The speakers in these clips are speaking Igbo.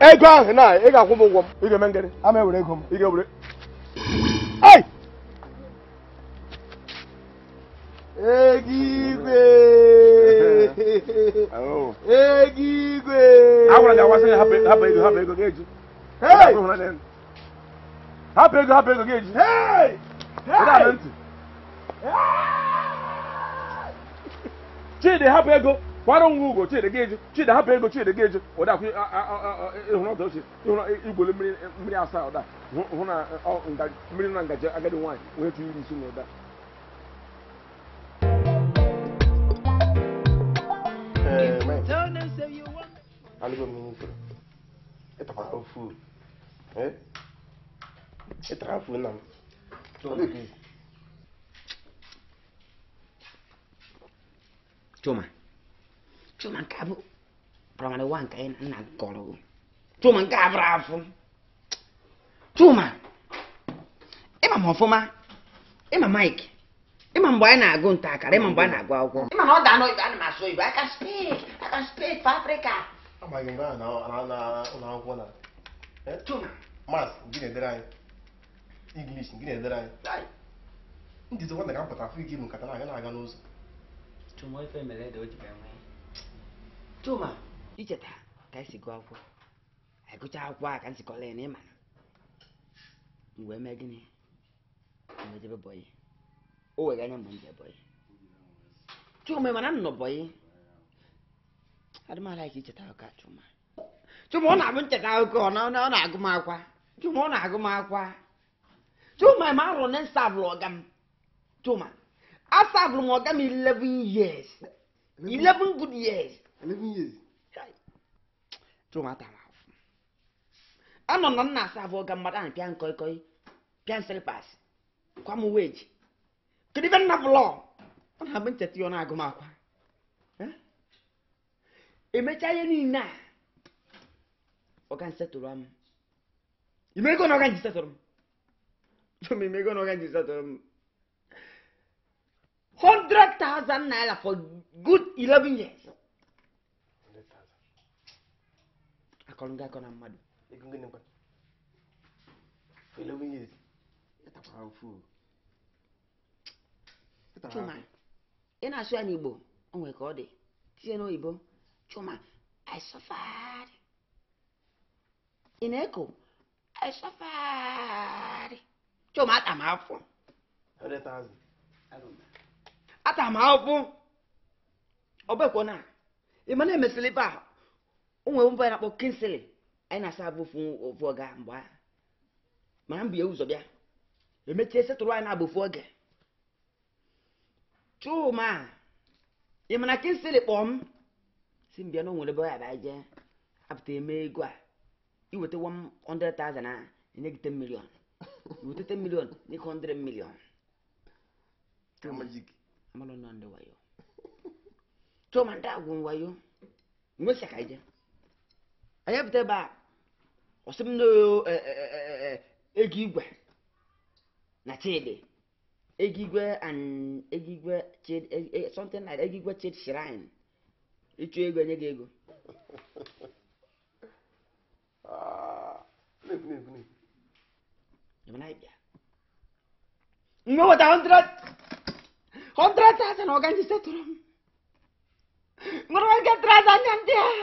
ego ahụ na ị ga-akwụ m ụgwọ m ị ga-eme ngịrị ama ewere ego m ị ga-ewere ai ego igwe ego igwe agwara gị agbasa ya hapụ ego hapụ ego ga-eji hapụ ego hapụ ego ga-eji ntị chidi hapụ ego kwara onwe ugo chidi ga-eji chidi hapụ ego chidi ga-eji ụdakwụ ịhụrụ ọdọ ochie ịhụrụ igwole mmiri asaa ụda hụ na mmiri na ngaji agadi nwanyị wee tụ iri isi na ụda Ci mancava. Però ma lo anche in un angolo. Ci mancava bravo. Ci ma. E ma Mike. E, e, e, e ma anyị na-agụ nta akara, ịma anyị na-agụ akwụkwọ. Ịma na ọ da n'oyibo I can speak, I can speak for Africa. ụlọ akwụkwọ gị na-edere anyị. English, gị na-edere anyị. Ndị aga n'ụzọ. Chuma, icheta ka esi gụọ akwụkwọ anyị e gụcha akwụkwọ a ka nzikọla ya na ịma na wee mee gịnị wee jebe bọyị o were anya mgbe m je bọyị Chuma mana m nọ bọyị adịmala ka icheta ụka Chuma Chuma ọ na-abụ ncheta akụkọ ọ na-agụ m akwa Chuma ọ na-agụ m akwa Chuma ma arụrụ na nsabụlụ ọga m Chuma asabụlụ m ọga m 11 years 11 good years emebe ihe ezi chụ nwata m afụ anọ na nna asa abụọ ga mmadụ ahụ pịa nkọikọi pịa nsịrịpas kwa m weji kedu ibe nna bụlọ ọ na-abụ ncheta ya ọ na-agụ m akwa emechaa ihe niile a ọga nsetụrụ m imego na ọga nji setụrụ m imego na ọga nji setụrụ m 100,000 naira for good 11 years kolonga kona mmadụ ego ngene mkpa eleven years ịtakwara ofu chuma ị na-asụ ya n'igbo o nwere ka ọ dị tinye n'oyibo chuma i suffered ị na-eko i suffered chuma ata m afọ ata m afọ ọ bekwa na ị ma na-emesịrị ibe onwere mba na-akpọ kịnsịlị anyị na-asa abụ ofu oge mgbe a mana mbụ bụ ya ụzọ bịa emechie setụrụ anyị na-abụ oge chuma ị mana kịnsịlị kpọọ m si mbịa na onwere ebe ọ yaba jee apụta eme ego a iweta 100,000 na enye iweta 10 100 chuma ndị ka anyị pụta ebe a ọsị m ego igwe na chidi ego igwe and chidi eh, something like ego igwe chidi shrine ịchụ ego enye gị ego nwe weta 100,000 ọganji setụrụ m nwere oge 3,000 ndị ahụ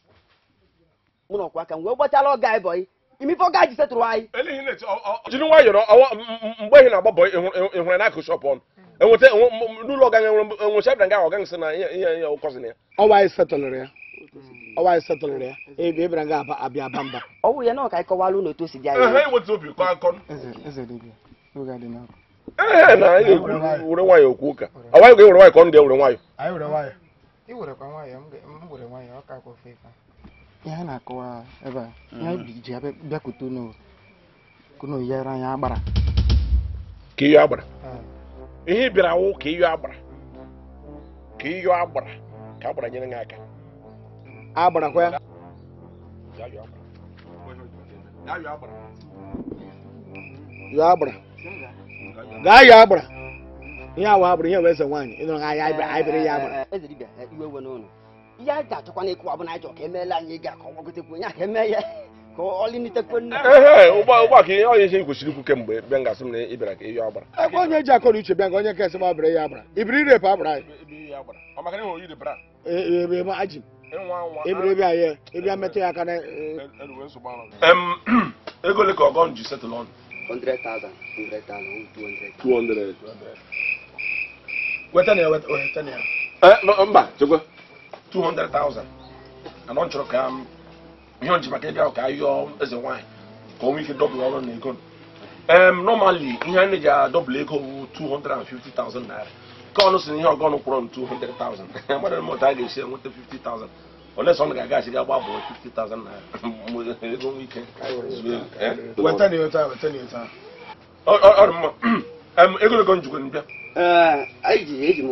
mụ na ọkwa aka m wee gbachala ọga anyị bọyị imife ọga ji setụrụ anyị jiri nwayọrọ mgbe ehi na-agba bọyị ịhụrụ n'akụ shọpụ ọnụ hmm. enweta n'ụlọ ọga enwere shabra nga ọga nsị na ihe ya ụkọzi na ya ọwa anyị setụlụrụ ya hmm. ọwa anyị setụlụrụ ya ebe ebere ga abịa aba mba ọ wụ ya na ọka anyị kọwalụ ụlọ otu o si dị anyị enweta obi kọ akọ ee na anyị were nwayọ okwu ụka ọwa anyị ga-ewere nwayọ ka ọ ga-ewere nwayọ ihe a na-akọwa ebe a mm. ihe ji bịakwute unu yere anya agbara ka iyo agbara ihe bịara wụ ka iyo agbara ka iyo agbara ka agbara nyere ya aka agbarakwa ya yo agbara gaa yo agbara ihe awa agbara ihe wee eze nwaanyị ịnụrụ ahịa anyị bịara ya agbara ya ga-achọkwa bụ na anyị ka emeela anyị ga ka onye aka eme ya ka ọlịnitekwe nne ụgbọ ka ihe onye isi kwesịrị ikwu kemgbe mgbe ngasị m na ị bịara ka ihe ọ ebe onye ji akọrọ uche bịa ka onye nke esem abịara ya agbara ibiri irepụ agbara anyị ebe anyị e, e, e, metụ ya aka ego ọgọ ji setụl ọnụ 200 200 na ya weta na ya eh, mba chekwa two hundred thousand anọ nkyerɛ ka ihe nkyerɛ maka ebi ahụ ka ayọ eze nwanyị ka ọ nwee ike dọbụl ọrụ na ego um, normally ihe anyị na-eji adọbụl ego bụ two hundred and fifty thousand naira ka ọnụ si na ihe ọgọ ọnụ kwụrụ two hundred thousand mmadụ na a ga-esi enweta fifty thousand ole sọ na ga agaghachi ga gbabụ fifty thousand naira ego nwee ike weta na weta weta na weta ọ dị mma ego ego njikwa mbịa eji m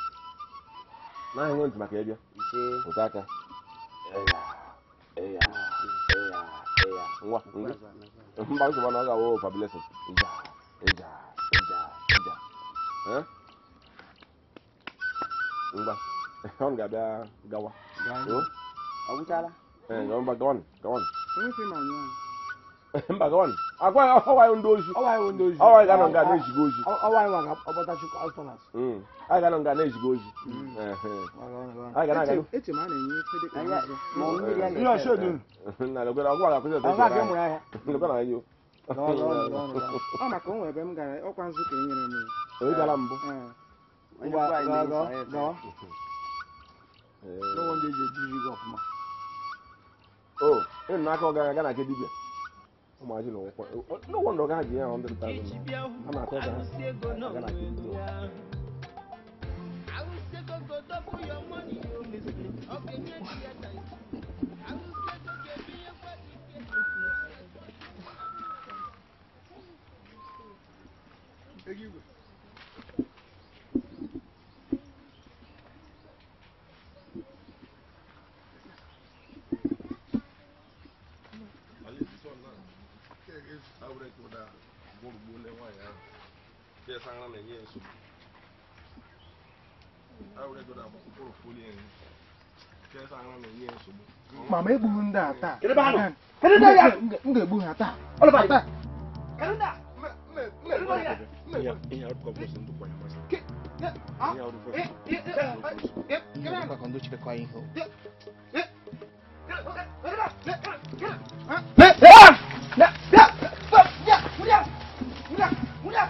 nahị nwe maka ịbịa pụta aka nwa mba nsogbu na ọ awụ fabulesin ngwa ọ ga-abịa gawa ọ gwụchala gawa gawa mba gọvanọ agwaghị ọwaghị ndị ozi ọwaghị ga nga na-ezigo ozi anyị ga nọ nga na-ezigo ozi onye gara mbụ o ịnụ n'aka ọ gara aga na nke imagine o nkwa no wonder ọga ji ya hundred thousand I'm not na-atọ ka ha na kiri Thank you. bɛɛ sanga na yɛ so awurɛ dɔ da bɔ kɔkɔrɔ foli yɛn bɛɛ sanga na yɛ so bɔ. mama egburu ndị a taa m ga-egbu ha taa Yeah!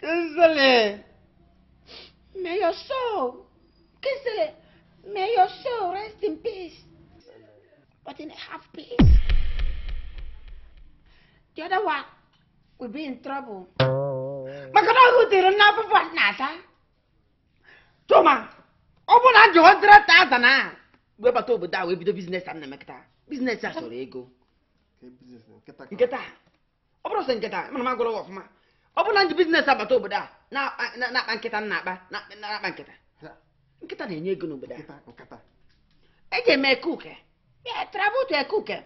Kızılı. May your soul, Kızılı, may your soul rest in peace. But in half peace. The other one will be in trouble. maka na ọhụ tiri na akwụkwọ asa tụma ọ bụ na jụọ dịrị taza na wee bata obodo a wee bido biznes a na-emekọta biznes a chọrọ ego nkịta ọ bụrụ sị nkịta mana m agụrụ ọfụma ọ bụ na ndị biznes agbata obodo a na-akpa nkịta na-akpa na-akpa nkịta nkịta na-enye ego n'obodo a eji eme e, e ekuke ya travel ekuke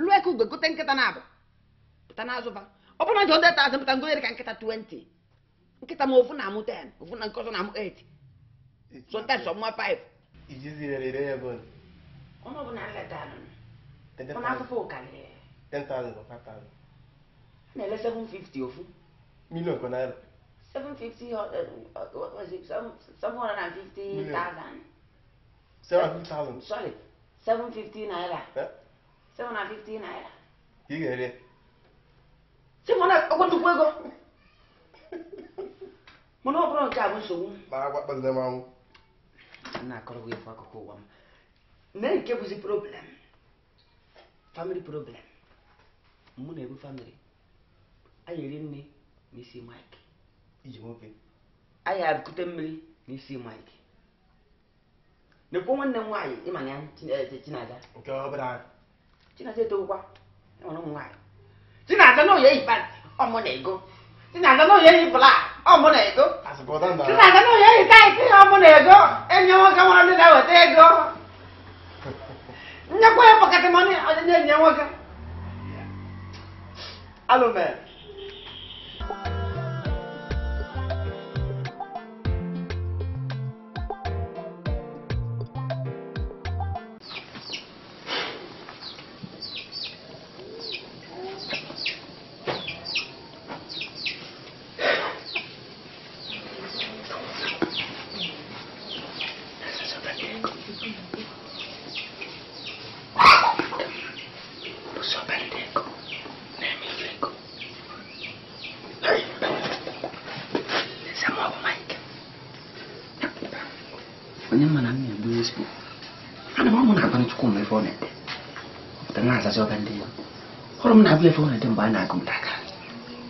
lụọ gote nkịta na-abụ pụta ọ bụ na ji ngonyere ka nkịta 20 nkịta ma ofu na-amụ 10 ofu na nke ọzọ na-amụ 8 sometimes na-ele ofu million kwa uh, uh, naira 750 750,000 sorry 750 naira 750 naira ga ọ bụrụ nke a bụ nsogbu m ụwa m Ne nke bụzi problem family problem mụ na-ebu family anyị eri nne n'isi Mike iji nwoke anyị arịkute mmiri n'isi Mike na-ekwuo nwanne m nwaanyị ịma ya eh, Chinaza Chinaza etowukwa enwere ụmụ nwaanyị Chinaza na oyi eyi pant ọmụ na ego Chinaza na oyi eyi blak ọmụ na ego Chinaza na oyi eyi taịtị ọmụ na ego enye nwoke nwere ndị na-eweta ego nyekwa ya pọketị mọni ọdịnye enye nwoke alụmere 你别疯了，等晚上我们再讲。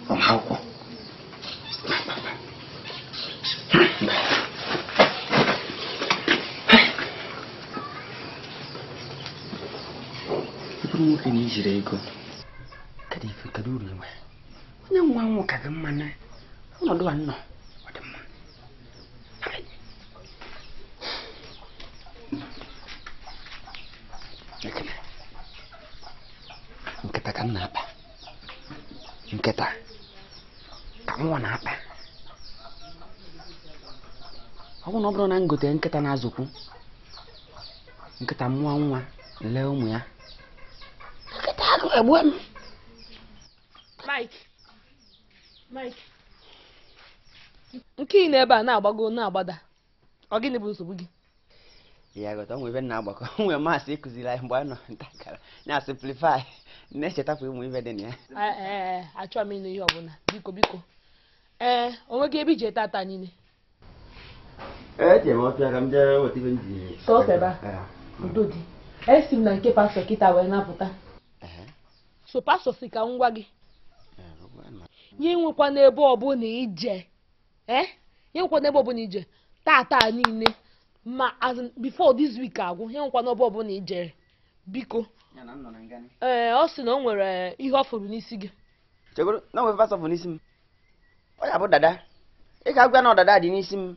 我好过。你不如跟你直接讲。bụrụ na ngote nkịta na-azụkwu nkịta mmụọ nwa lee ụmụ ya nkịta agụ egbu m nke ị na-ebe a na-agbago na-agbada ọ gịnị bụ nsogbu gị ya ghọta onwe ebe na-agbakọ nwere maasị ịkụziri anyị mgbe anyị nọ ntakara na simplify na echetapụ ụmụ ibe dị na ya e, e, e, achọghị m ịnụ ihe ọbụla biko biko ee onweghị ebe iji ete ata niile eje m ọfịa ka m jee weta m ji sọseba udo dị esi m na nke pastọ kịta wee napụta so pastọ si ka ngwa gị nye nwekwa n'ebe ọbụla ije ee nye nwekwa n'ebe ije tata niile ma as before this week agwụ nye nwekwa n'ebe ọbụla ijere biko ee ọ sị na o nwere ihe ọ n'isi gị chegoro na o nwere pastọ n'isi m ọ ya bụ dada ị ga-agwa na ọdada dị n'isi m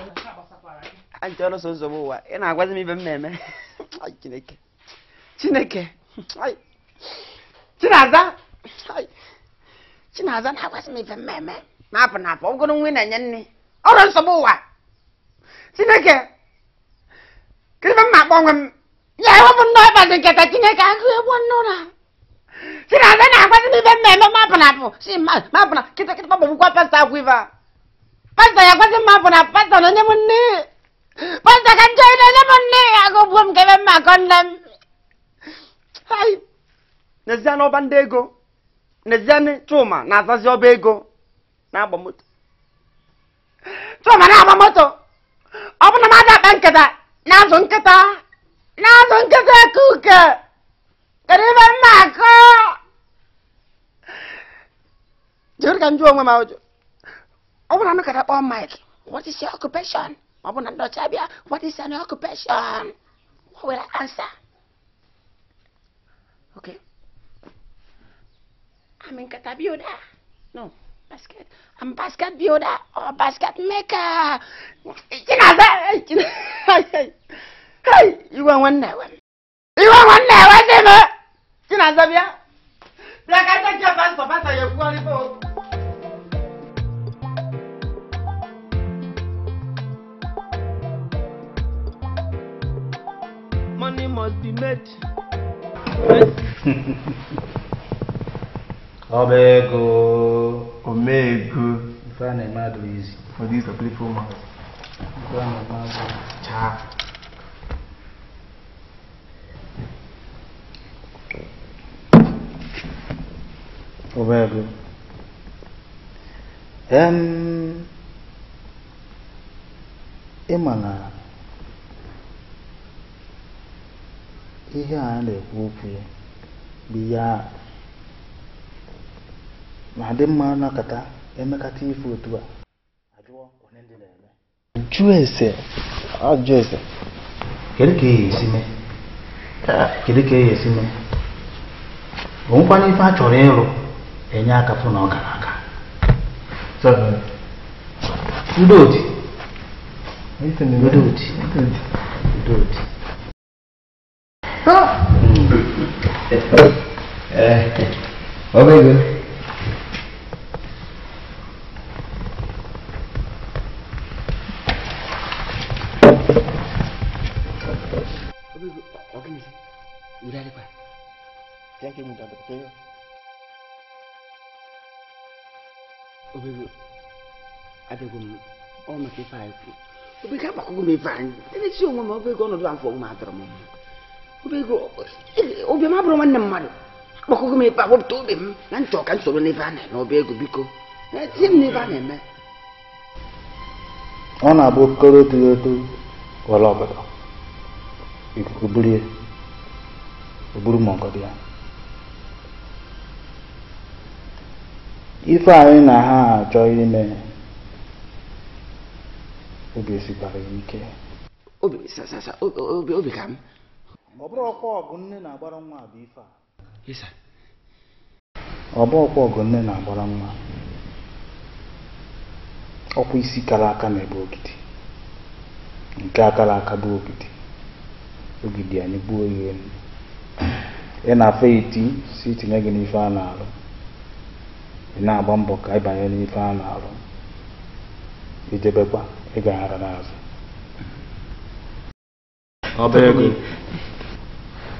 anh cho anja ọlụsọ ụzọ m ụwa ị na-agwazi m ibe m na-eme chineke chineke chinaza chinaza na-agwazi m ibe m na-eme na-apụ na-apụ ọgụrụ nwa ị na-enye nne ọrụ nsọ m ụwa chineke kedu m na-akpọ onwe m ya ewepụ ndị nào nketa chineke agụ egwu nnụra chinaza na-agwazi m ibe m na-eme mapụ na apụ si mapụ na kịta kịta kpọgbọgbukwa pasta akwụ ife a pasta ya agwazi m mapụ na pasta na onye m nne Pantakan kayo na naman ni! Ako buwam kay mamakon na... Hay! Nezie n'ọba ndị ego. Nezie ni cuma na-azazi ọba ego. Na-agba moto. Chuma na-agba moto! Ọ bụ na m akpa nkịta na-azụ nkịta na-azụ nkịta kuke. Kedu ebe mmakọ? Jiri ka m jụọ onwe m Ọ bụ na m kara kpọọ Mike, what is your occupation? Mwen bon nan do chabi ya, what is an occupation? Mwen wè la ansa. Ok. Am en kata byoda? No. Basket? Am basket byoda? Ou basket maker? I china zè! I china zè! Ay, ay! Ay! I wan wan nè wè mi. I wan wan nè wè mi! I china zè biya! Biya kan chakye pas sa pas a ye kwa li pou! money must be made. Obego. Omego. If I am mad easy. For this a playful mouth. If I am mad Cha. Obego. Um. Emana. ihe a na-ekwu okwu bụ ihe a dị mma nakọta emekata ifo otu a ajụọ onye ndị na ajụọ ese kedu ka e esi mee ka bụ e nkwanye ife a ịrụ enye aka na ọ gara Bỏ ờ. bây giờ Udah Jangan mudah betul. Obigu, ada gum, oh mesti fai. Obigu apa aku gum fai? Ini siung mama obigu no doang fong matra mama. obi m abụrụ nwanne mmadụ akpọkọgo m ebe a obi m na ntị ọka nsoro n'ebe a na-eme ọba ego biko na etinye m n'ebe a na-eme ọ na-abụ okoro otu eto ọbụla ikuku burie oburu ya ife anyị na ha achọ ime obi esikwara ike obi ka m ọ ọkwa ọgụ nne na-agbara nwa bụ ife a ọbụ ọkwa ọgụ nne na-agbara nwa ọkwa isi kara aka na-ebe ogidi nke akara aka bụ ogidi ogidi anyị gbuo ihe elu ị na-afọ iti si itinye gị n'ife a na-arụ ị na-agba mbọ ka ịbanye n'ife a na-arụ ijebekwa ịgaghara n'azụ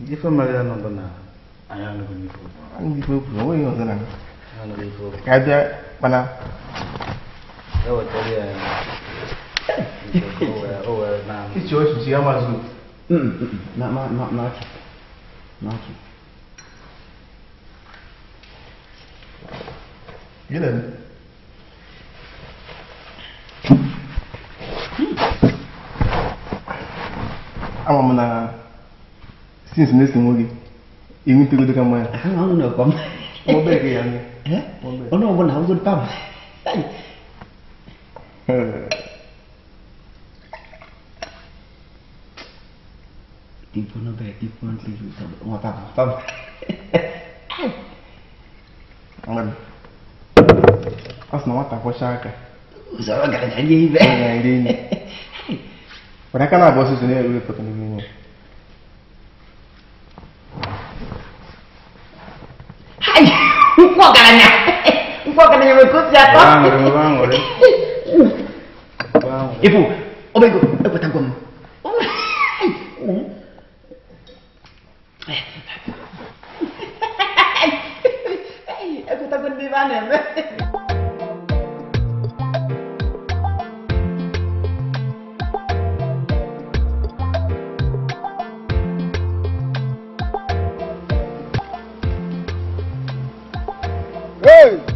Nifo magana nondo na ayano ko nifo. Ang nifo ko mo yung sana. Ano nifo? Kaya bana. Ewo tali ay. Oh, oh, na. Ichi osu siya mazu. Mm, na na na na. Na. Gelen. Ama mı na? since next morning èmi tó lóde ká máa. àwọn àwọn ọ̀nà ọ̀kọ́ mọ́. mo bẹ́ẹ̀ kí ya ni. ọ̀nà ọ̀bọ̀n náà wọ́n bá mọ́. ìbọn bẹ ìbọn tó lù tọ́ wọn bá mọ́ bá mọ́. asọ na nwata kwọcha aka ụzọrọ gara na ndị ibe gara na ndị enyi ọ na-aka na-abụ ọsụsụ na-ewepụta n'ime ya Ufo kananya. Ufo kananya ikut ya, jatuh. Bang, udah bang, udah. Bang. Ibu, obeng gue, ibu eh, tanggung. Eh, eh. Aku takut di mana? Hey!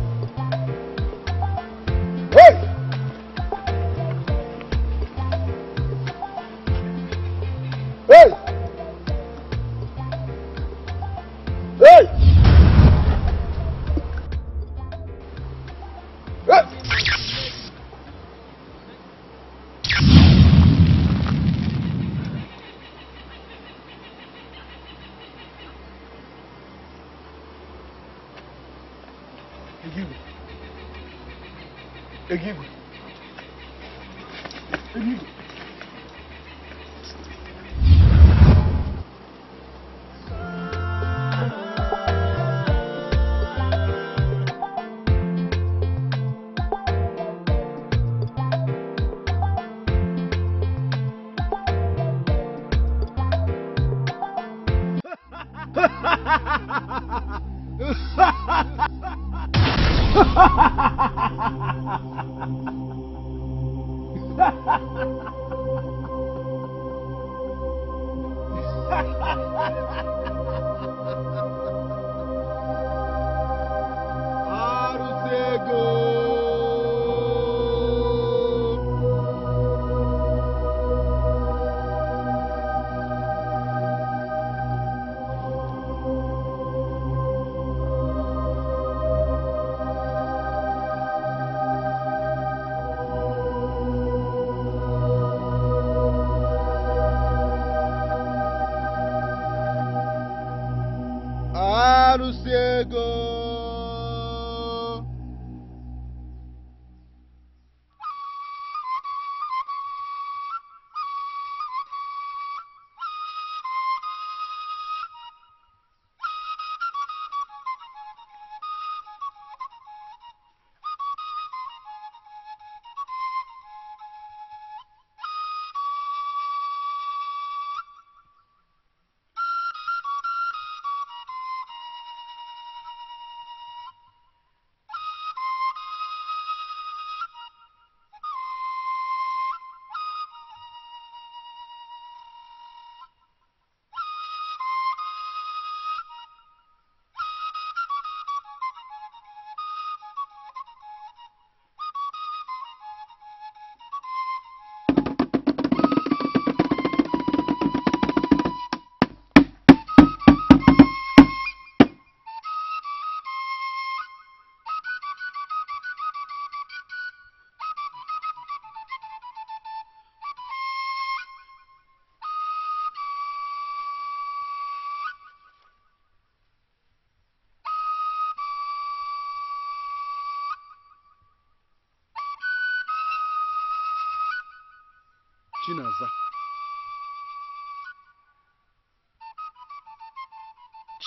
forgive you.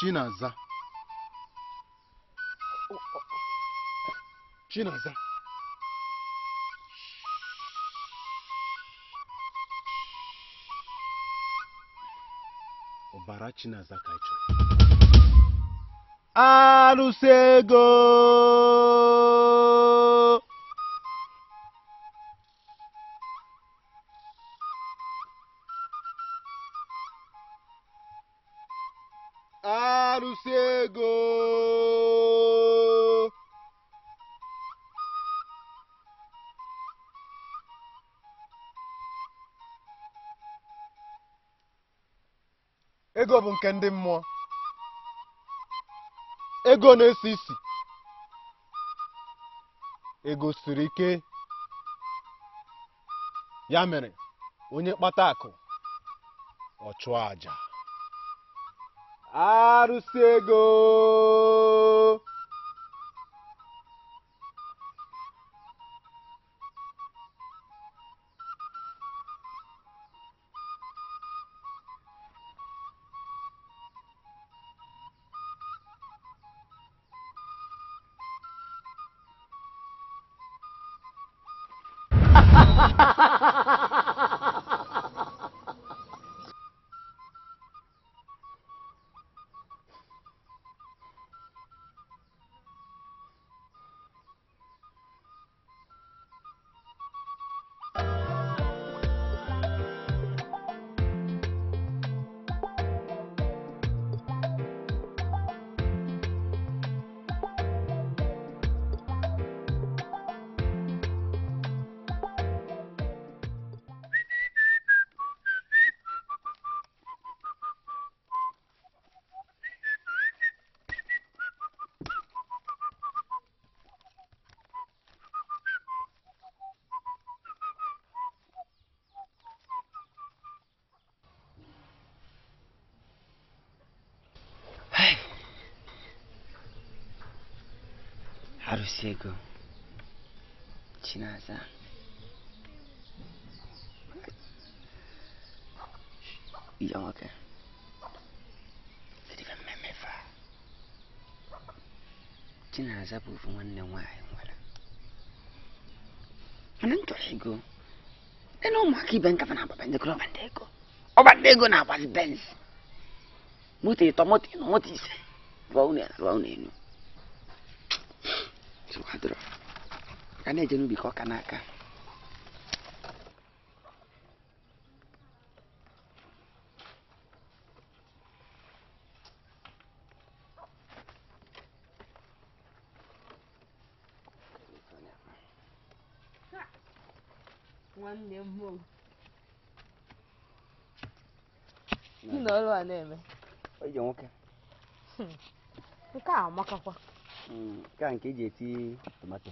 Chinaza Chinaza ọbara Chinaza ka chọrọ arụsị ego nke ndị mmụọ ego na-esi isi ego siri ike ya mere onye kpata akụ ọ chụọ aja arụsị ego Arvszégő. Csinálzál. Így alak -e. Szerintem nem me me Csinálzál búfon wannan wayan wala. Anan to higo. Eno ma ki ben kafa na ba ben de kro O ba de go na ba ben. Muti to muti no muti se. Wa une wa une no. cái này chứ bị khó khăn cả, cả. quan niệm mùng nữa luôn này mày bây giờ ok cái ảo mà cọc à cái anh cái gì chi tomato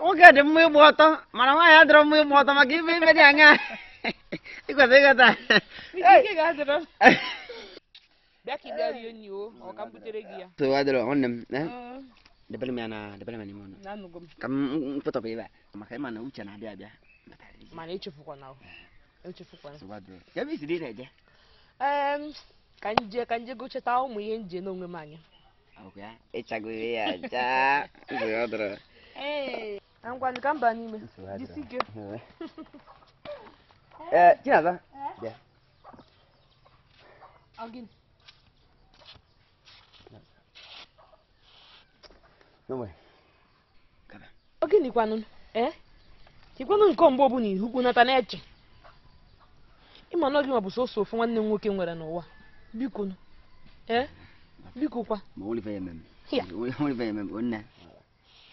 Oke ਕਹਦੇ ਮੈਂ ਬਹੁਤ ਮਨਾ ਮੈਂ ਯਾਦ ਰੋ ਮੈਂ ਬਹੁਤ ਮਗੀ ਵੀ ਮੈਂ ਜਾਂਗਾ ਇਹ ਕਹਦੇ ਕਹਦਾ ਕੀ ਕਹਦੇ ਰੋ Daki kamu yon yo, kamu kambutere giya. To wadro onnem, eh? Da bala ya. eh. mana, da bala Kamu, kamu Na Kamu Kam foto pe ba. Makai mana ucha na bia bia. Mana ichu fuko nawo. Ichu fuko Kamu To wadro. Ya bi dia je. Um, kanje kanje go cheta o mu yenje no nwe manya. Okay. Echago eh, ya ja. Wadro. Eh. ngwanụ ka mba n'ime jisi ike ee chinaza kwanu oginikwanụ ee chikwanụ nke mgbe ọbụla ihukwu nata na-eche ịma na oge ma bụ sọsọ ofu nwanne m nwoke nwere n'ụwa biko ee eh? mm. biko kwa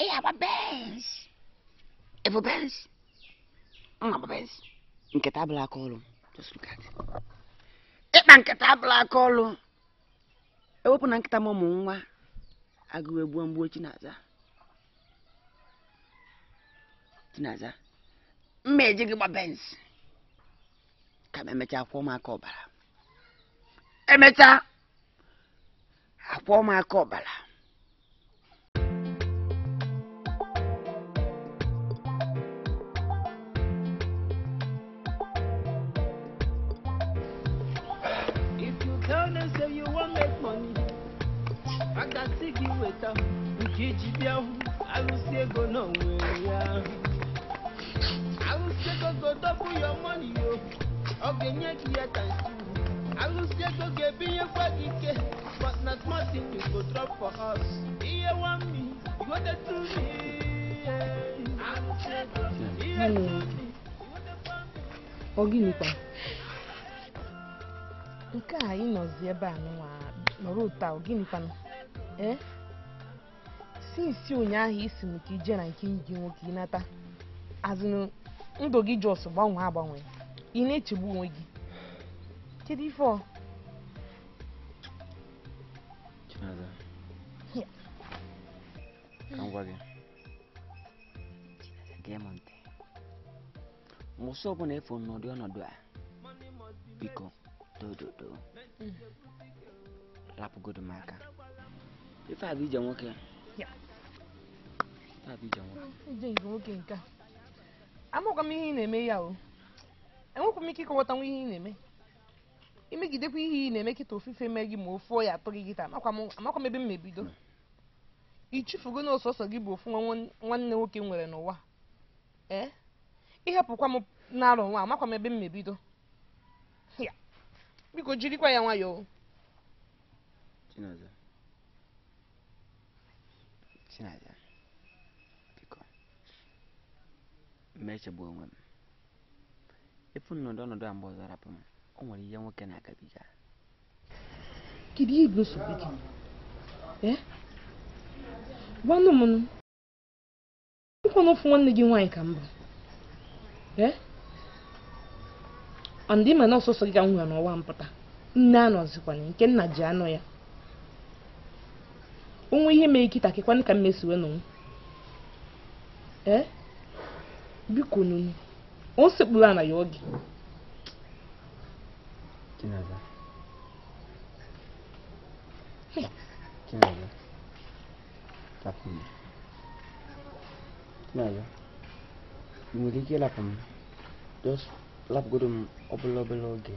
Ik heb bens. Ik bens. Ik heb bens. Nketa abụla aka ọrụ. Ịkpa nketa abụla aka ọrụ. Ewepụ na nkịta m ụmụ nwa agụụ egbuo mgbuo Chinaza. Chinaza. Mma gị gba bens. Ka emechaa akwụkwọ ụmụaka ụmụaka ọbara. si gị weta nke iji bịa hụ alụsị ego n'onwe ya alụsị ego ga edobụ ya mọni n'iyo ọ ga-enye gị ya tansi alụsị ego ga-ebinyekwa gị ike but not na smartin you go drop for us ihe wami igote tumi ihe tumi ọ gịnịkwa nke a ị nọzi ebe a nọrọ ụta ọ sinsi eh? ụnyaahụ isi m ka ije na nke enyi gị nwoke ịnata azụ ndụ gị jọs gbanwee agbanwe ị na-echegbu onwe gị kedu ife gị gee m ntị mụsị ọbụla efu n'ụdị ọnọdụ a biko dododo mm. rapụgodo m aka ife a bụ ije nwoke nke m ihe ị na-eme ya o enwekwa m ike ịkọwatanwu ihe ị na-eme imegidekwa ihe ị na-eme kịta ofufe mee gị ma ofu ya atọ gị gịta amakwa m ebe m mebido i na ọsọsọ gị bụ ofu nwanne nwoke nwere n'ụwa ee ịhapụkwa m na-arụ nwa amakwa m ebe m mebido biko jirikwa ya nwayọọ Chinaya onwe m efu ọnọdụ a mgbe o nwere ihe nwoke na-agabiga kedu ibu nsogbu gị gwanụ nwanne gị nwaanyị ka mba ma na gị ka m nwere mpụta nke ji anọ ya onwe ihe mere ikita kekwanụ ka mmesiwe nụ ee biko o sekpuru na ya oge ị nwere ike ịlapụ m lapụgodo m obele obele oge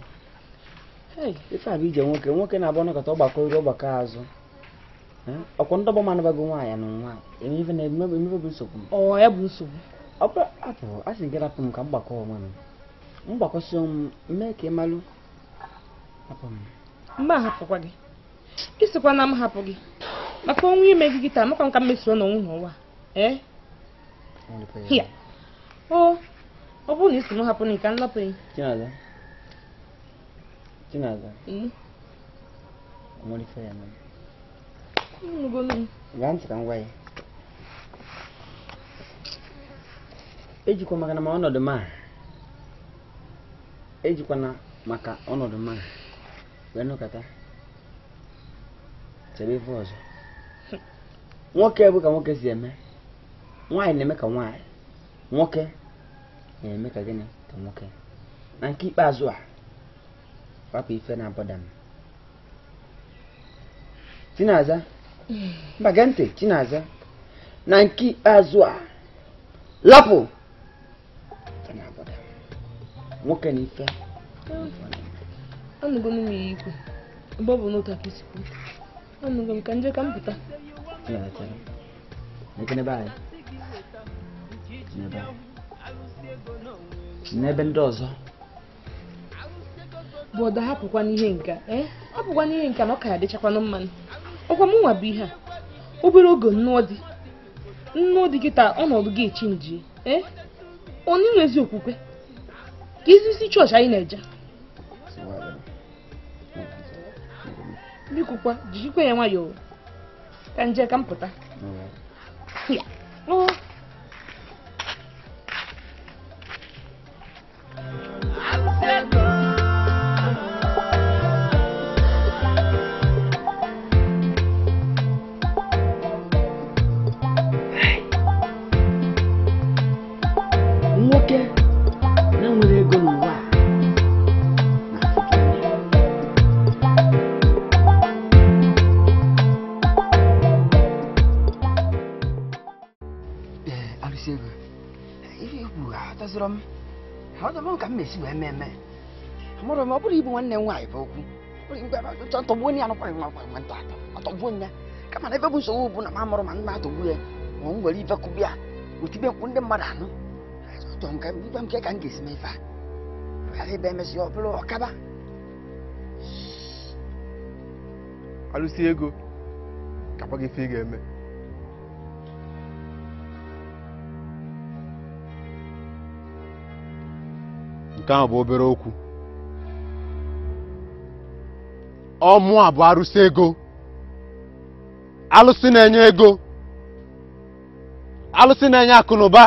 ife a bụ ije nwoke nwoke na-abụ ọnọkọta ọgbakọ ori azụ ọkwụntọgbọ mana gị nwaanyị na nwa emebe na emebe bụ nsogbu m. ọ ya bụ nsogbu ọbụla apụ a sị gị rapụ m ka m gbakọ onwe m m mgbakọsi m mee ka ị malụ hapụ m mba ahapụkwa gị ịsịkwa na m hapụ gị maka onwe ime gị taa makwa nka mmesoro n'onwu n'ụwa ọ eh? bụrụ na isi m hapụ na ka m lapụ ya Chinaza Chinaza hmm? ya ejikwa e maka na ma ọnọdụ ma ejikwana maka ọnọdụ ma wee nụkọta chebe ife ọzọ nwoke bụ ka nwoke si eme nwaanyị na-eme ka nwaanyị nwoke na-eme ka gịnị ka nwoke na nke ikpeazụ a wapụ ife na-abọda m tinaza mba gee ntị Chinaza na nke azụ a lapụ nwoke na ife m ebe ọ bụ n'otu aka anụgo m ka ka m pụta n'ebe ndị ọzọ ihe eh? nka na ọ ka ya dịchakwanụ mmanụ ọkwa mụnwa bụ ihe a obere oge nnụọ dị nnụọ dị kịta ọnọdụ gị echi nji ee onye nwe ezi okwukwe ka isi chọọchị anyị na-eje bikokwa jijikwa ya nwayọọ ka nje ka m pụta nwanne m nwaanyị bụ okwu tọgbuo ya anụkwaghị nwa nwa nwata atọgbuo ya kama na ebe bụ nsogbu bụ na m amụrụ ma nna atọgbu ya ma m nwere ibe kụbịa otibe nkwụ ndị mmadụ anụ ibe nke ka m ga-esi mefe ghara ebe emesịa ọ bụrụ ọkaba alụsị ego kakwa gị ife ị ga-eme nke ahụ bụ obere okwu ọmụ a bụ arụsị ego alụsị na-enye ego alụsị na-enye akụnụba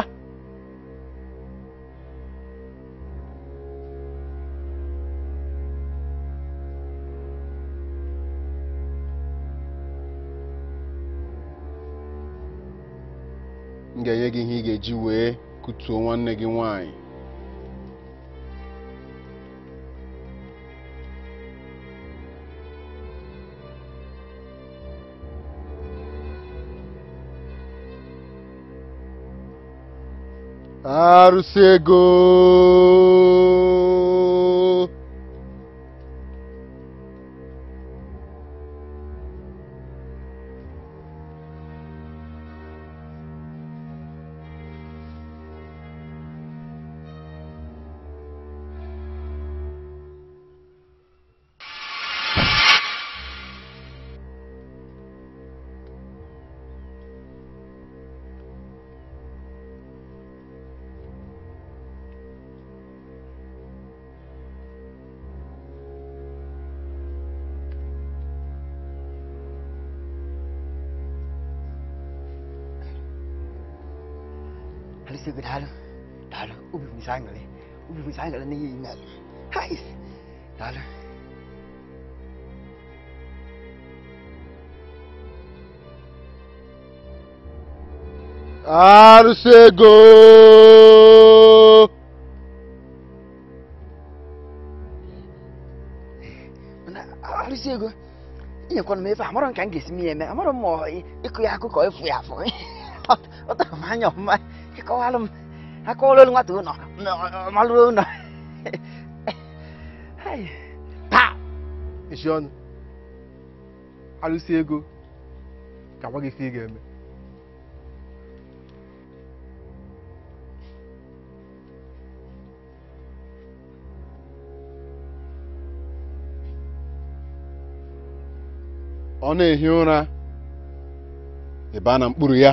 na m ga-enye gị ihe ị ga-eji wee kutuo nwanne gị nwanyị Arcegou! 사이가 니 이날 하이 나를 아르세고 아르세고 이거 건 매파 아무런 관계 있으면 아무런 뭐 이거 야구 거의 부야 부 어떤 마녀 엄마 이거 하름 하고 올라온 거 두노 No, Maluna. hey. Pa! Ishi ọnụ. Alụsi ego. Ka gwa gị ife ị ga-eme. Ọ na-ehi ụra ebe a na mkpụrụ ya.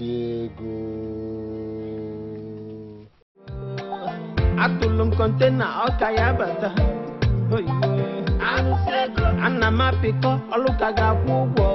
ego atụlụ m kọntena ọka ya bata ana m apịkọ ọlụ ga-akwụ ụgwọ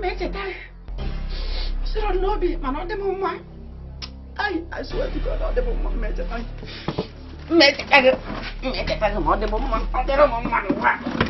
mecheta ya ọ sịrọ n'obi mana ọ man. m mma ai I swear to God ọ dị m mma Make it mmecheta gị mmecheta gị Make it dị m mma ọ dịrị m mma ngwa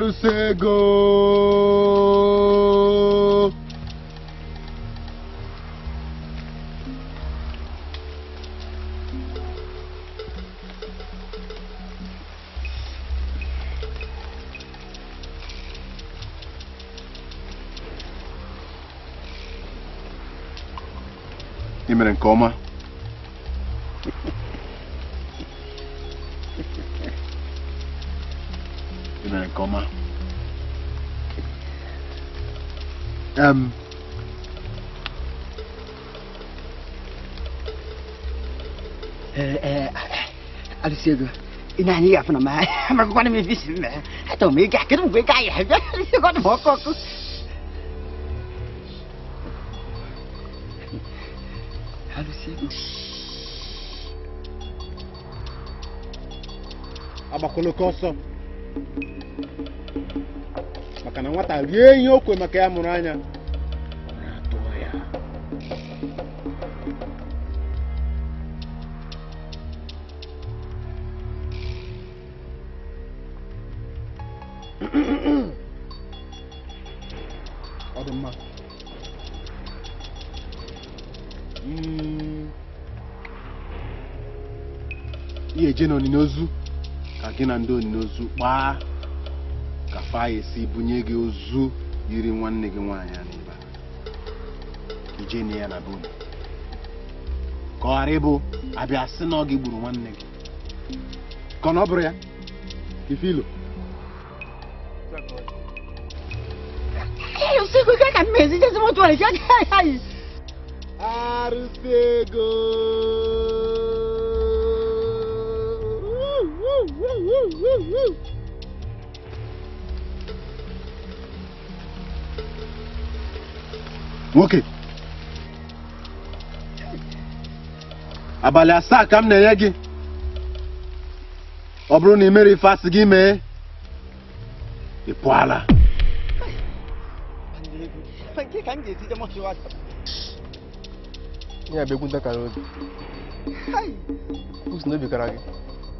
para o cego. Imerencoma. الأم نعم. أرسيدو أه، أه، إنا هني يعفنا ما عمرك قانا من فيس حتى هم يجي حكرم ويجي يحب يقعد موقف أرسيدو أما كله كوسو maka na nwata rie ihe o kwe maka eje n'onini ozu ka gị na ndị onini ozu kpaa ka fa ya bunye gị ozu yiri nwanne gị nwaanyị a n'ebe ije na ya na bụ ụda ka ọ ghara ịbụ abịa sị na ọ gị gburu nwanne gị ka na ọ bụrụ ya ifilo usiku ike ka mmezi jezi motuwali ya nwoke abalị asaa ka m na-enye gị ọ bụrụ na ị mere ife asị gị mee ị pụọla ya bụ egwu kara gị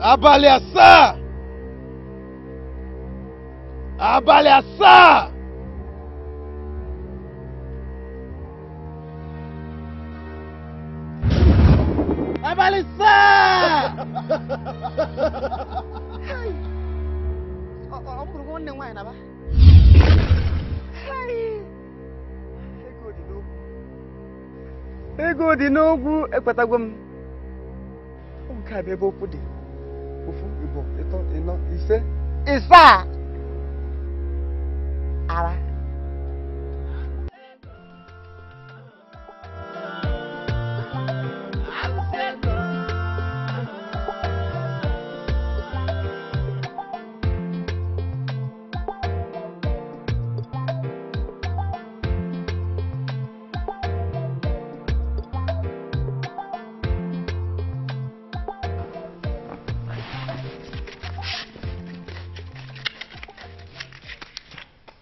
abalị asaa abalị asaa abalị asaa ọ bụrụ nwanne nwaanyị na ba ego dị n'ogwu ekpetago m nke a bụ ebe okwu dị iná iṣẹ́ ìsà ara.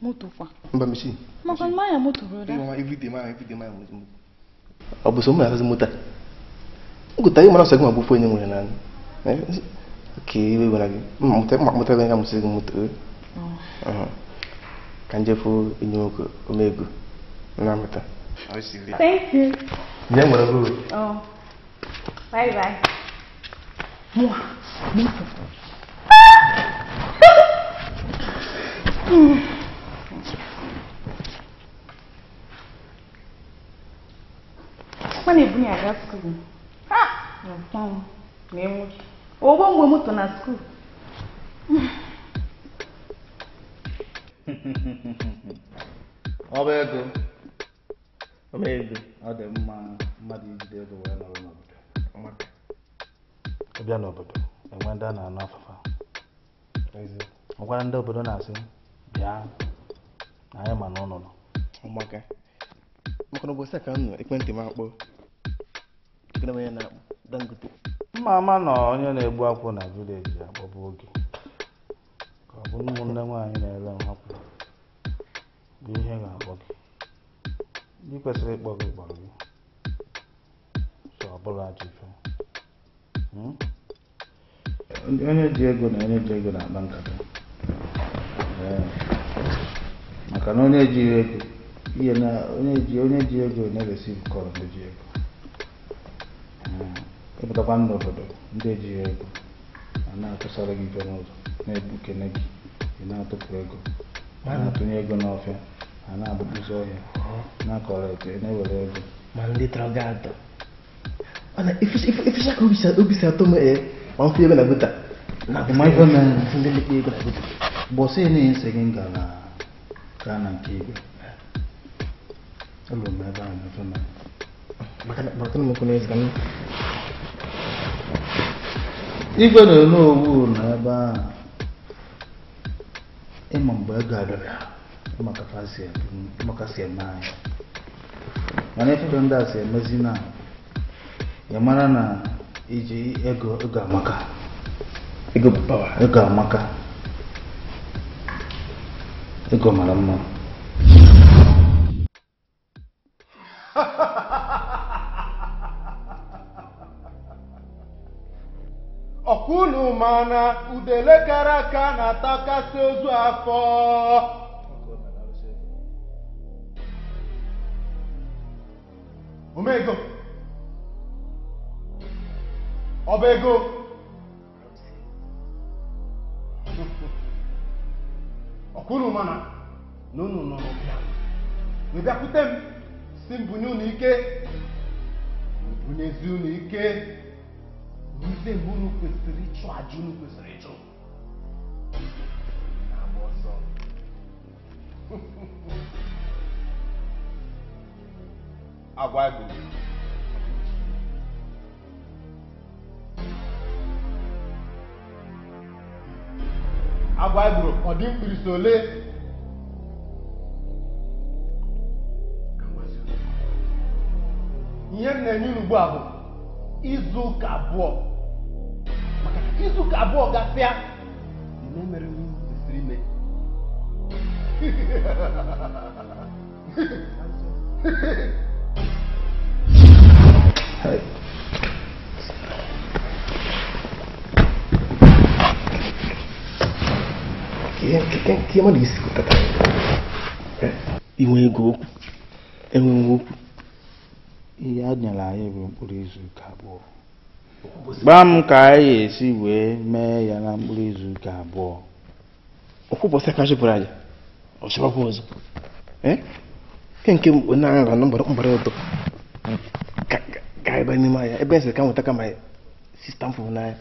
moto fa. n ba misi. mo kɔni moto broda. mama everyday ma yan everyday ma yan moto. a boso mo yàrá sí mota n kò tayi mana sɔgbɛn ma bɔ foyi ni ok bɛ wala bi mɔtɛ mɔtɛ bɛ n ka muso moto ye kan jɛ fo ko o mɛ gu n n'a thank you. ɲɛ ŋɔnɔ ko. bye bye. moi moto. Mm. a na-ebunye ya aga skuul ụgbọ mgbe moto na skuul ọba ego ọba ego ọ dị mma mmadụ ijide ego wee nọrọ n'obodo ịbịa n'obodo enwe ndị a na-anụ afụfa ọ gwara ndị obodo na-asị bịa anyị ma na maka na ụbọchị ka m nọ ekwentị m akpọ onye na-akpọ dangote mma ama na onye na-egbu akwụ na vileji agbaba oge ka ọ bụ ụmụnne nwaanyị na-ere nhapụ bụ ihe ga-akpọ gị ndị kwesịrị ịkpọ gị kpọrọ gị so ọ bụla ajụjụ hmm? onye ji ego na onye ji ego na-akpa nkata maka na onye ejighị ego ihe na onye ji ego na-eresi kọrọ ndị ji ego ịpụtakwa nna obodo ndị ji ego a na-atụsara gị ife n'ụzọ na gị ị na-atụpụ ego a na-atụnye ego n'ọfịa a na-agbapụzi ọhịa na-akọrọ eke na-ewere ego ma ndị mana ka obi si atọ ma ego na gota ndị ego na gota na-enye nsị gị ka na nke igwe Igwe na-ere owu ebe ahụ ịma mgbe ego adọrọ ya e e maka si eme mana ife ndị a si emezi na ya mara na iji ego ego amaka ego mara mma mana udele kara aka na-atakasị ozu afọ omego ọba ego ọkwụrụ mana na unu nọ n'ụbịa bịakwute m si mbunye unu ike mbunye unu ike ivebu unu kwesịrị ịchụ aja unu kwesịrị ịchọ agwa gụrụ ọ dị ole ihe izu ụka abụọ maka izu ụka abụọ gasịa mere m kwesịrị ime Que é, é maníssico, tá, tá? É. E um engogo. É ihe a nyere anyị bụ mkpụrụ izu ụka abụọ gbaa m ka anyị esi wee mee ya na mkpụrụ izu ụka abụọ ọkwụbọsị ka chụpụrụ anyị ọchịbakwa ọzọ eke eh? nke onye agha gara na mgbara ụtọ ka ebe n'ime anya ebe esi ka nweta kama sista m fụrụ n'anya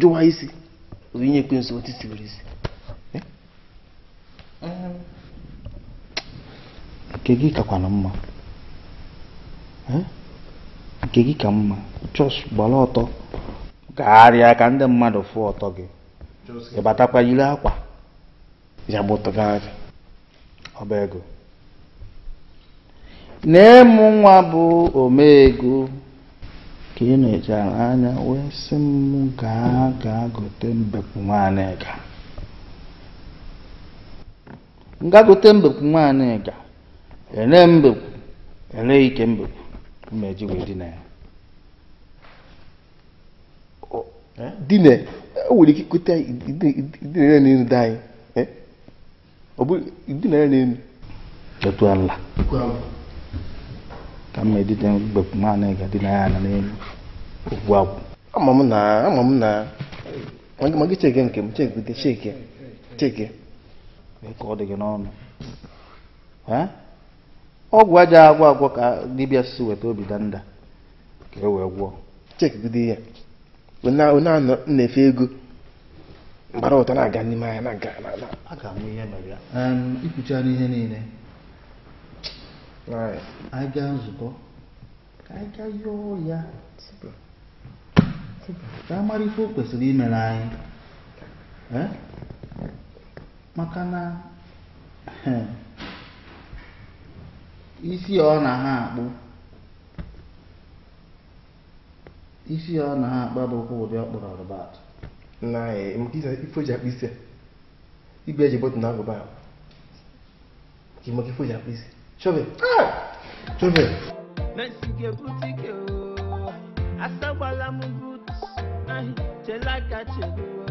jụwa isi onye ekwensu otu sibiri isi nke gị kakwana mma hm? nke gị ka mma chọs gbara ọtọ gagharịa ka ndị mmadụ fụ ọtọ gị ịbatakwa yiri akwa ya gbụtụgharị ọba ego na-emụ nwa bụ ego ka ị na-echara anya wee sị m gaa gaa gote mbekwu nwaanyị ga nga mbekwu nwaanyị ga ele mbekwu ele ike mbekwu mmeji wee dina ya e? dina enwere ike ikute idinere n'elu dị anyị e? ọ bụ na enu. etu ala ka mma edite mbekwu naanị ga dị ya na n'elu ugwu akwụ ama m na ama m na magị cheke nke m cheke cheke cheke ka ọ dị gị n'ọnụ ọgwụ aja agwọ agwọ ka dibịa si weta obi danda ka e wee gwọọ chekidide ya na-efe ego mgbara ụta na-aga n'ime anya na-aga a ga-amụ ihe mere ya ikwuchara n'ihe niile anyị gaa nzukọ ka anyị gaa yọọ ya ka a mara ife o kwesịrị imere anyị maka na isi ọ na ha akpụ isi ọ na ha akpa bụkwa ụdị ọkpụrụ rụbat na e, ife ji akpụ isi igwe eji bọtụ na agụba ka ịmaka ife ji akpụ isi ike chọbe asagbala m but chela aka cheruo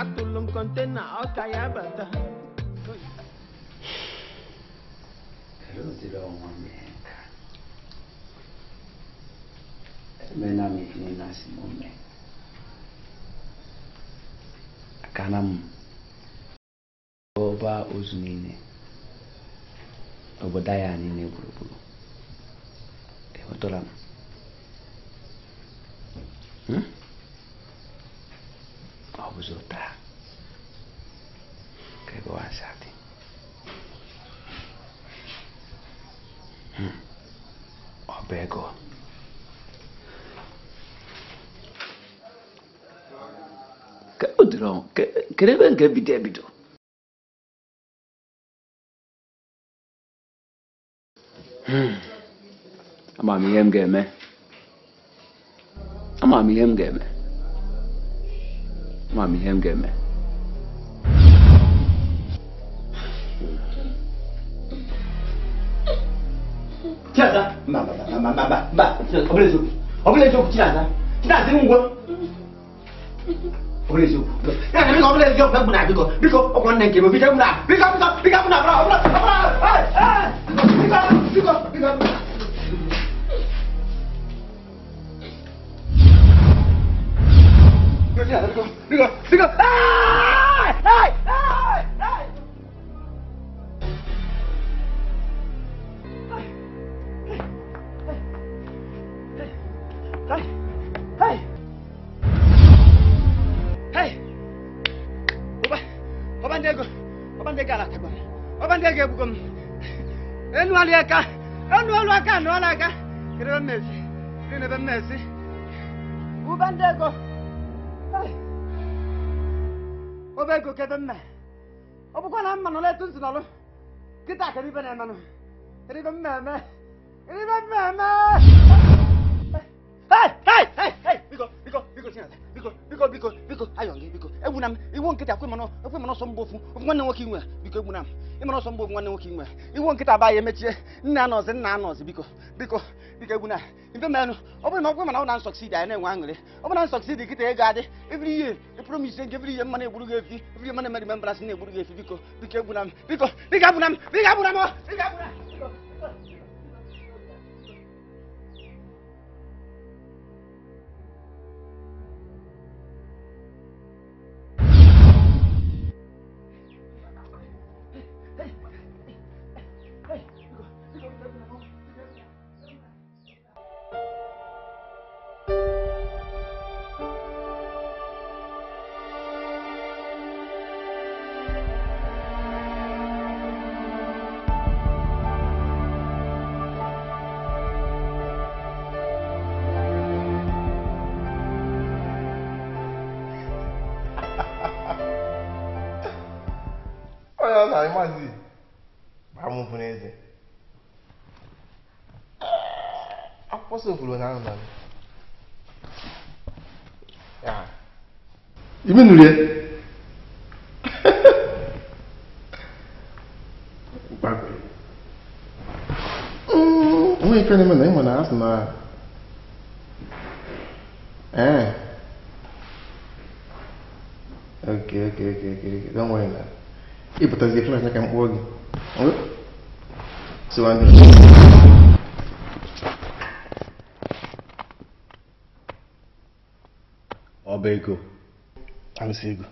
atụlụ m kọntena ọka ya bata રુદ્રોમમેકા મેનામિકનેનાસિમોમે Nascimento. oba cana niile obodo anyị niile gburugburu enwetara m ọ bụzi ụta kedụ ebe nke bido ebido hmm. ama m ihe m ga-eme ama m ihe m ga-eme ama m ihe m ga-eme Chiaza, mba mba mba mba mba, ọ bụla eziokwu, ọ bụla eziokwu Chiaza, ngwa, ọ bụla eziokwu, biko m na-eziga mgbe m na biko biko ọkwa nne nke m biko m na biko biko biko m na bro biko biko biko biko biko biko biko ọlụ aka ọnụ ọlụ aka anụ ọlụ aka kedebe mmezi mmezi ụba ndị ego obe ego kede na mma na-emenụ biko biko biko biko ayọ gị biko na, m iwu nkịta kwe mana okwe mana ọsọ mgbe ofu ofu nwanne nwoke inwe biko egbuna m ịmana ọsọ mgbe ofu nwanne nwoke inwe iwu nkịta ba ya emechie nna anọzi nna anọzi biko biko biko egbuna mfe menụ ọ bụrụ na ọkwe mana ọ na nsọksidi anyị na-enwe aṅụrị ọ bụrụ na nsọksidi kịta ego adị evri ihe ịpụrụ m ise nke evri ihe mmanụ egburu gị efi evri ihe mmanụ emeri membrasị na-egburu gị efi biko biko egbuna m biko biko egbuna m biko egbuna m biko egbuna m abalị maazị amụpụ n'eze akwụkwọ sofuru na anụ na ibi ¿Eh? E por trazer flores na cama hoje. Seu André. Ó, Bacon. Ansigo.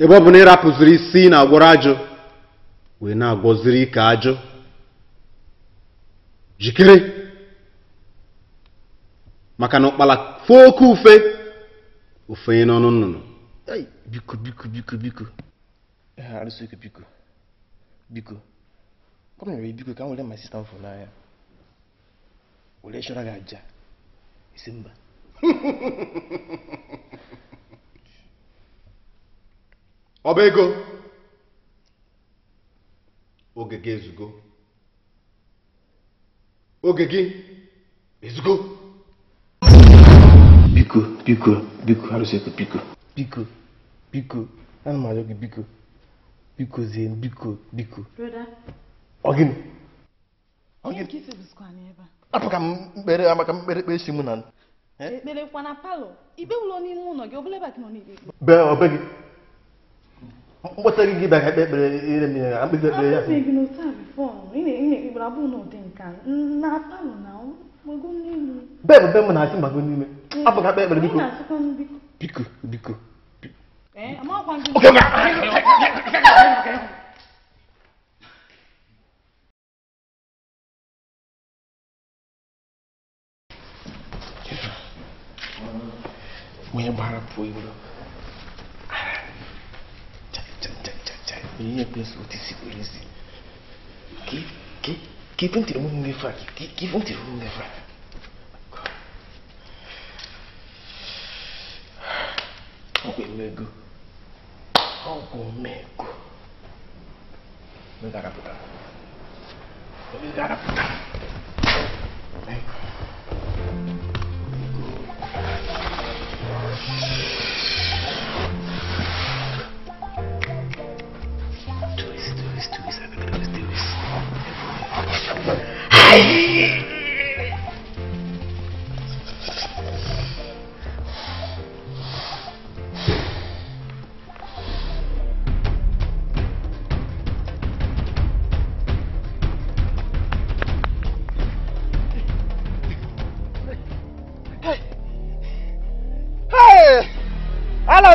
E bo bu n'ịra pụziri isi na agwọrọ ajụ na-agwọziri ike ajụ jikere maka na ụkpala foo ofenye n'ọnụ nnụnụ biko biko biko biko ah, biko biko ọ biko ka m were ma sista n'anya were chọrọ gị aja isi mba ọba ego oge gị ezugo oge gị ezugo bigo bigo bigo harus ikut bigo bigo bigo kan maju ke bigo bigo zain bigo bigo ọ gịnị Ogin? gịnị apụka m kpere amaka m kamu beri si eh, eh? mụ na ekpere kwa na palọ ibe ụlọ n'ime ụlọ gị obere ebe gị nọ n'ikpe be ọbe gị mkpọta gị gị bịa ka beri. ekpere ire m ya mkpịsị ekpere ya. Abụghị gị n'otu a bifọ, ị na-ekpere abụghị n'ụdị nka, na palọ bebe be m na-achị mbago n'ime abụghị akpa ekpere biko biko biko onye gbara pụọ iwere ihe kwesịrị otisi kwere isi ke ke que Keep on tirando um devagar. Keep on tirando um devagar. Algo mego. Algo mego. Vem cá, puta. Vem cá, puta. Vem. ala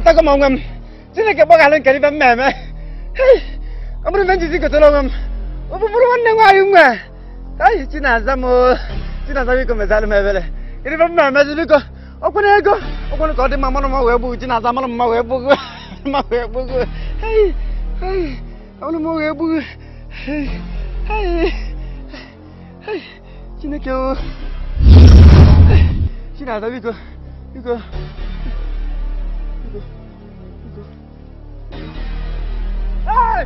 ta ko mongam sine ke boga len kali bam meme hey tôi men jisi ko tolongam obu muru wanne ngayum à kai chi na-aza m chi na-aza m iko mezalụ m ebere ịrịba m na-emezili iko ọkwere ego ọkwere ka ọ dị mma mmanụ mma wee gbughi chi na-aza mmanụ mma wee gbughi mma wee gbughi hei hei hey, mma wee gbughi hei hei hei chineke o chi na-aza biko biko biko biko Hey!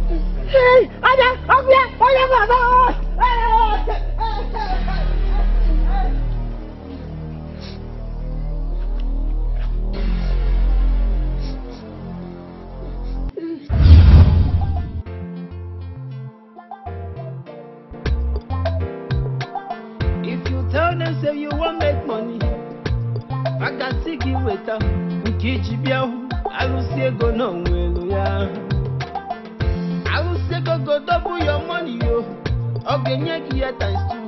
ọjà ọgbẹ ọjà bàbá ọ. If you tell them say you wan make money, I can see give weta nkeji bịa hụ arụsị ego na onwe elu ya. ọ ga-enye gị ya times two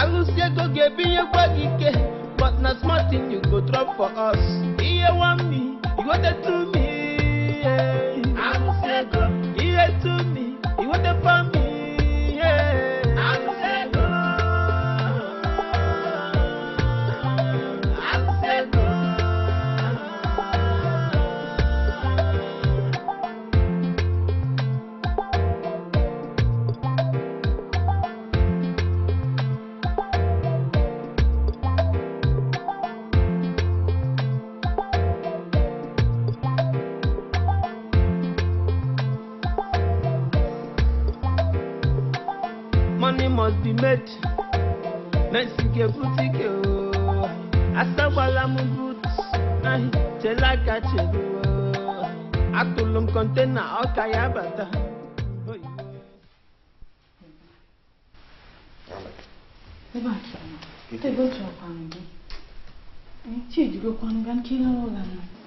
arụsi ego ga-ebinyekwa gị ike but na small thing you go drop for us ihe one me you go dey two me ihe two me must be made mesike butike o asagwala m but chere aka chere atụlụ m kọntena ọka ya bata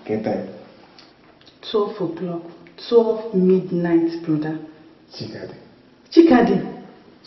Get time. 12 o'clock, 12 midnight, brother. Chikadi. Chikadi.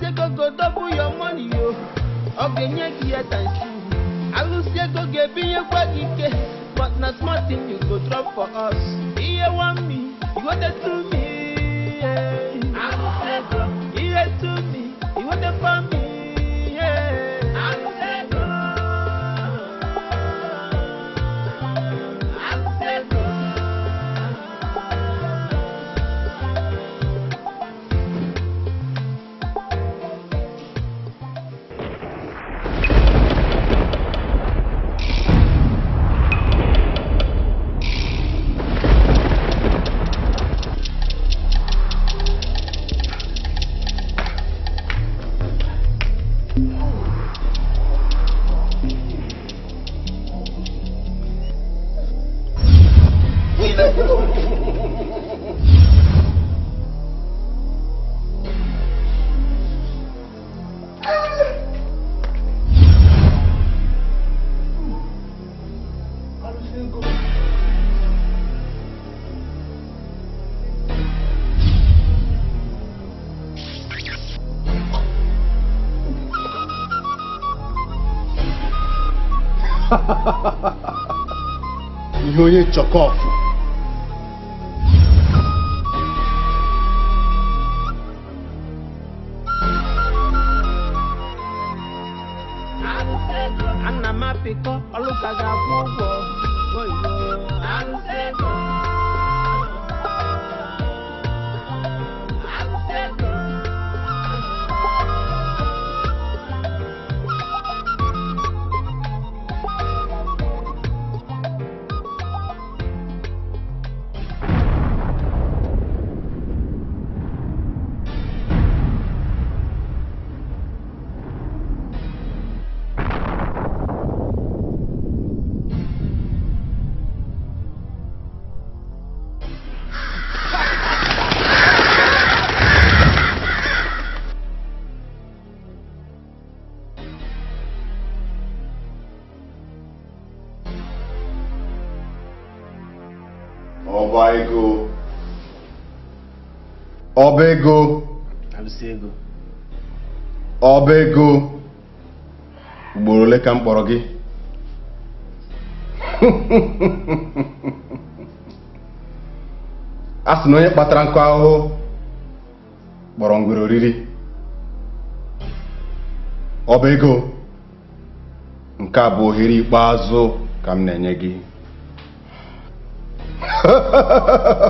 Seko go go double your money, yo. Okay, nyeki at and shoe. I will seko get be a quadike. But not small thing you go drop for us. Here want me, you want it to me. Yeah. to me, you want it for me. you only chuck off. ọba ego ugboro ole ka m kpọrọ gị a sị na onye kpatara nkụ ahụhụ kpọrọ ngwere oriri ọba ego nke a bụ ohere ikpeazụ ka m na-enye gị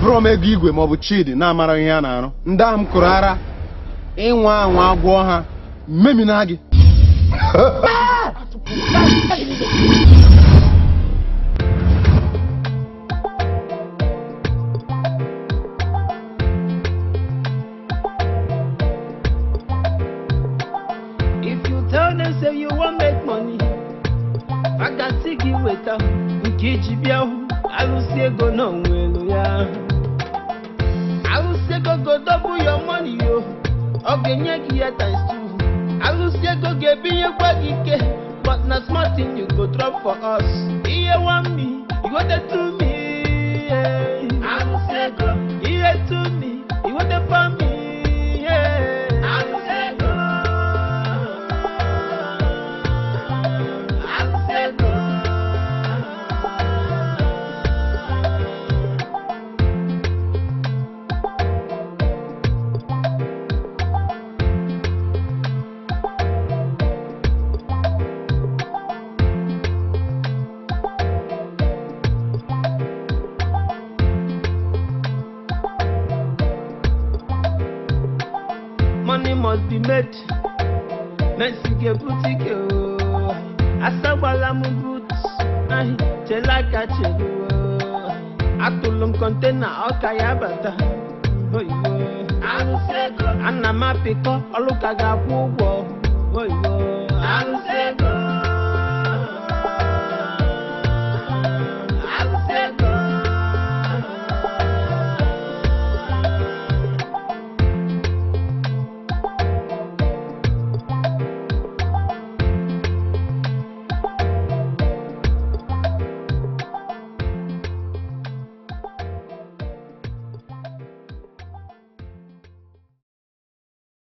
buru m ego igwe maọbụ chidi na-amara ihe a na-arụ ndị ahụ m kụrụ ara ịnwa anwa agwọ ha memina gị ah!